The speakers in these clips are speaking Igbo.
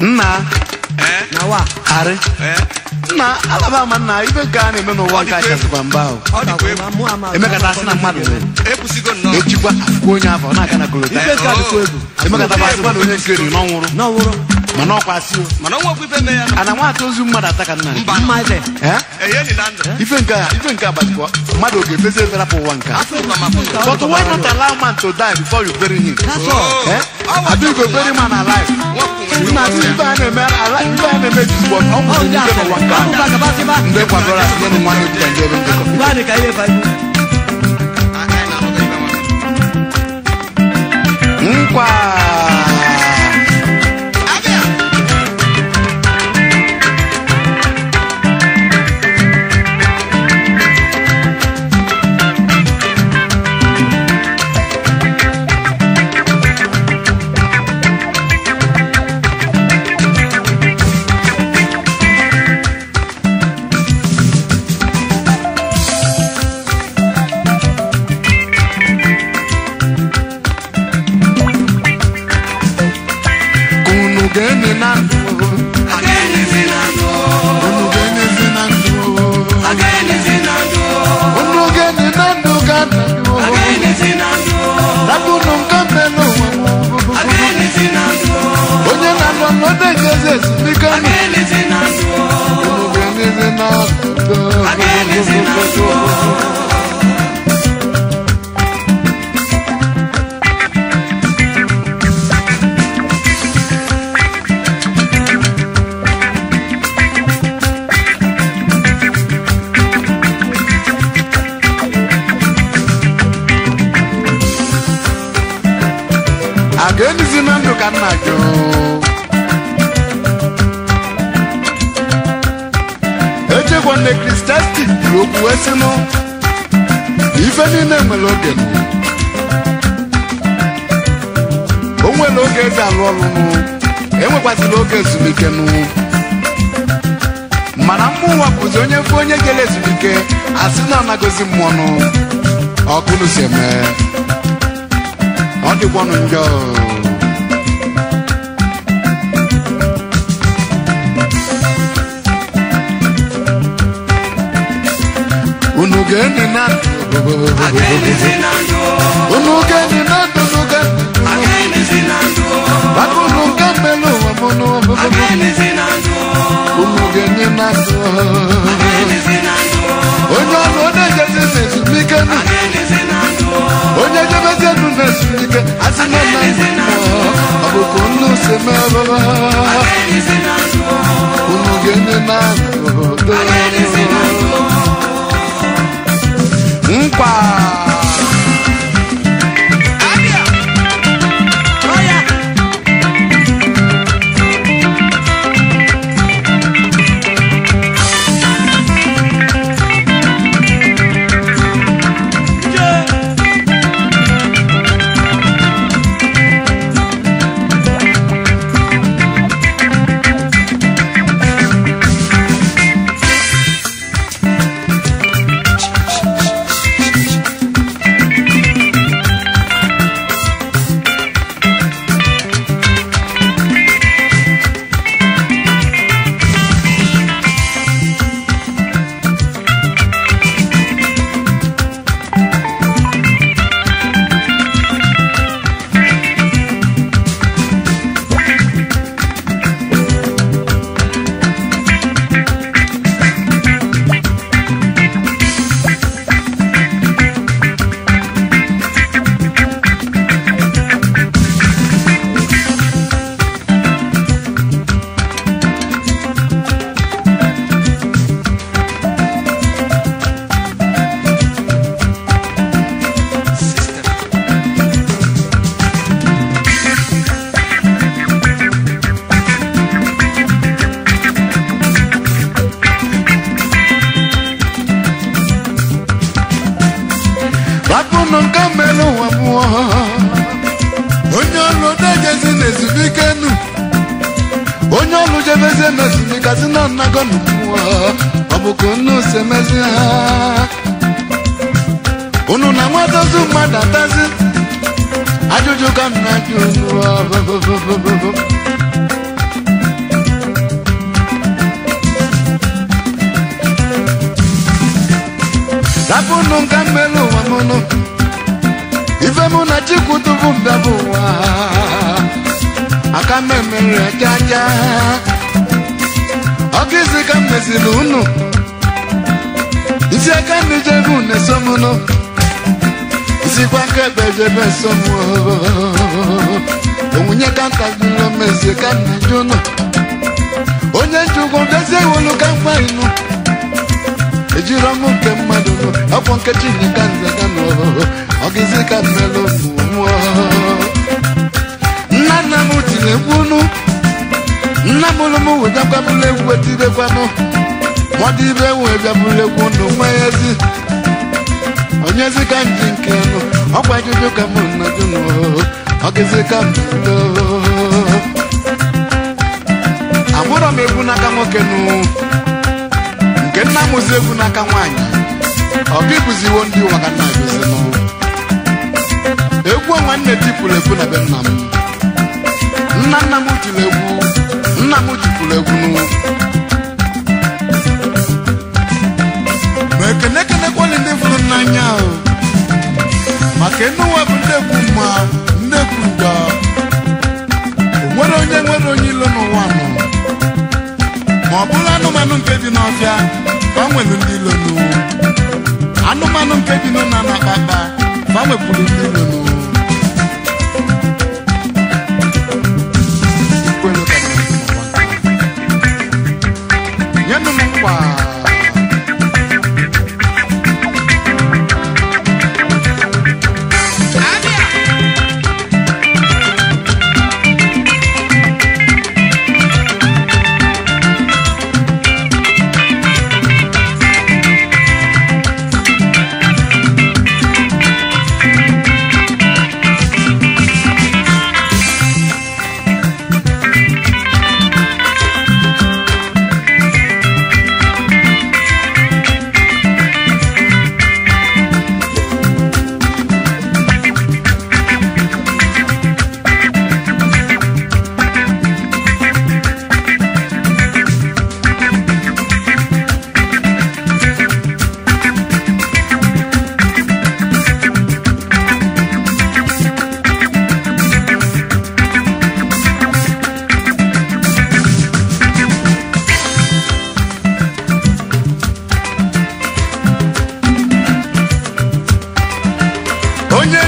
nna eh? nawa arị nna eh? alaba ama nna ibe nke a na-eme n'ụwa nke achasịkwa mba ahụ emekata asị na mmadụ echikwa akwụkwọ onye afọ na-aka na kolota emekata bụ asị mmadụ onye nke ri n'ọnwụrụ mana ọkwa asị o mana nwa okwu ife mee ya ana nwa ozu mmadụ ataka nna mba mma ife ife nke a ife nke abatị mmadụ oge fezi efere apụ ụwa nke but why not allow man to die before you bury him adu go bury man alive nna ndị ife a na-eme ife a na-eme jizụ ọ nwụrụ ndị ife n'ụwa nke a ndị kwadoro asị n'ụmụ nwaanyị bụ ndị ebe ndekọ Mkwa! yes, we can. Anything at all. Anything at all. Anything at all. Again, is in Andrew Canagio. niile kristian ga kwuru okwu esinụ ife niile nwere oge o nwere oge eze alụ ọlụnụ enwekwasịla oge ezumike nụ mana mmụnwa bụzi onye mfe onye jere ezumike asị na anagozi mmụọnụ ọkụnụ si eme ọ njọ unu geni na unu geni na unu geni bako unu gambelo wamono unu geni na onye ọrụ onye jebe na ezumike nụ onye jebe jenu na ezumike asị na nna ọ bụkwa nnu si merụrụ unu geni na unu geni 哇！ọnụ mmerụ nwa mmụọ onye ọrụ dejezi na ezumike nu onye ọrụ jebezie na ezumikazi na nnago na mmụọ ọ bụ ka unu si emezi ha unu na nwatazi mmadụ atazi ajụjụ ka nna ajụ unu rapụnụ nka mmerụ ụwa mụnụ ife mụ na chukwu tupu m ụwa aka m emere jaja ọkụ isi ka m mesiri unu isi aka ndị jebe unu esomụnụ isikwa ka ebe jebe esomụ onwunye ka ntagbulomezi ka m na-eji unu onye njikwu dozie iwolu ka mkpa inu ejiri ọnwụ nke mmadụ afọ nkechi nke nze ga n'ọhụrụ ọgịzi ka mmelụ mmụọ nna nna m tiri mkpụnụ nna m lụm wedakwabụla egwu etirekwanụ mmadụ ibe webịabụla egwu nụ ezi. Onye onyezi ka nji nke nụ ọkwa ajụjụ ka m nọdụ n'ọhụrụ ọgịzi ka mmelụ amụrọ m egwu n'aka nwoke nụ nke nna mụzi egwu n'aka nwaanyị ọ gị bụziwo ndị ụwa ka nna gụzi n'ọnwụ egwu onwe nne tipụrụ egwu na be nna m nna nna m tiri egwu nna m jipụrụ egwu n'ụwa ma ekene kenekwali ndị fụrụ nnanya ahụ maka enuwa bụ ndị egwu mma ndị egwu ngwa o nwere onye nwere onye ilo n'ụwa nọ ma ọ bụla anụmanụ nke bi n'ọfịa fa nwelu ndị ilonu anụmanụ nke bi n'ụna na akpakpa fa nwepụrụ ndị ilonu nyenụ m nkwa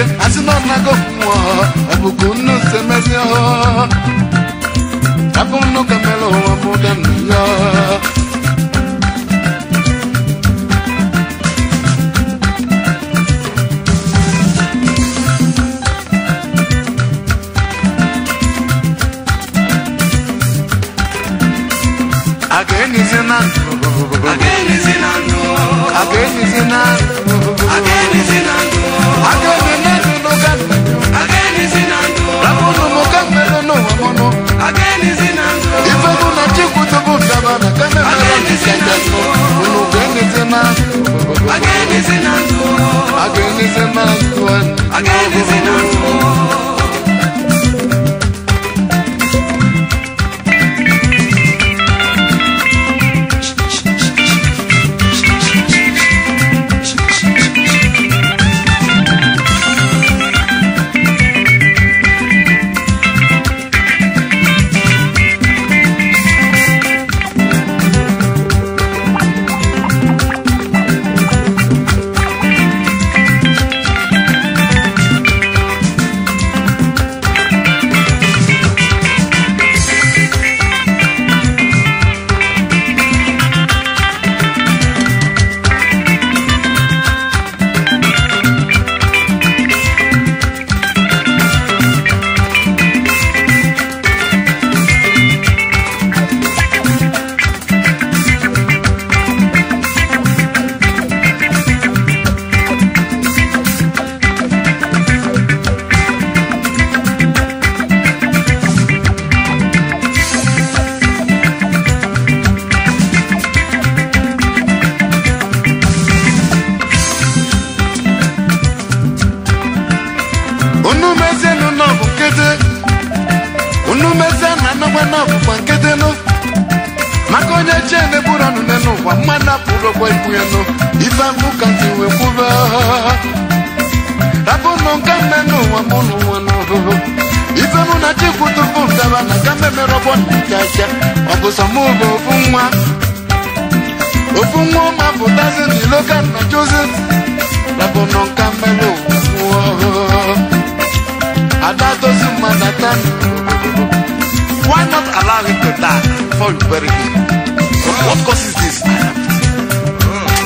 eke asị na ọ nago mmụọ abụkụ nnu semezi ọhụụ kwa ikueno ifambu kanti wekuba rabuno nkameno wamunu wanoho ifemu natikutufunda bana kambemerobonikaca wakusamuba ofunwa ofunwa omaputazi ndilokana josi rabuno nkameno wamunu adatosi madatani Why not allow him to die before you bury him? What causes this?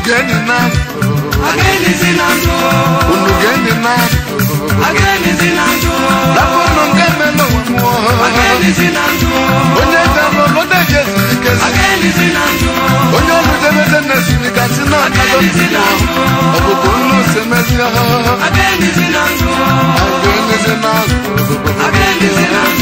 Again in love. Again is in love. Again in love. Again is in love. That one on game and no more. Again is in love. When you come on, what they get. Again is in love. When you're with them, then they see the casino. Again is in love. Again is in love. Again is in love. Again is in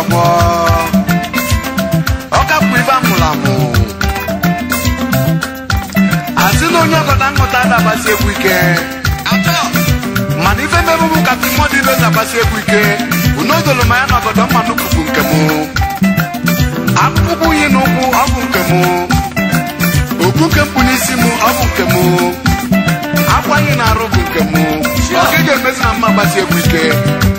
agwọ ọkapụ ibe amụrụ amụ asị na onye ọgọda nghọta na-agbasi egwu ike mana ife mmerụ mụ kasị mmụọ dị na-agbasi egwu ike unodolo ma ya na ọgọdọ mmanụ bụ nke mụ akpụkpọ unyi na ụkwụ ọgwụ nke mụ okpu nke mpụ n'isi mụ ọ nke mụ akwa anyị na-arụ bụ nke mụ oge ga-emezi na mma agbasi egwu ike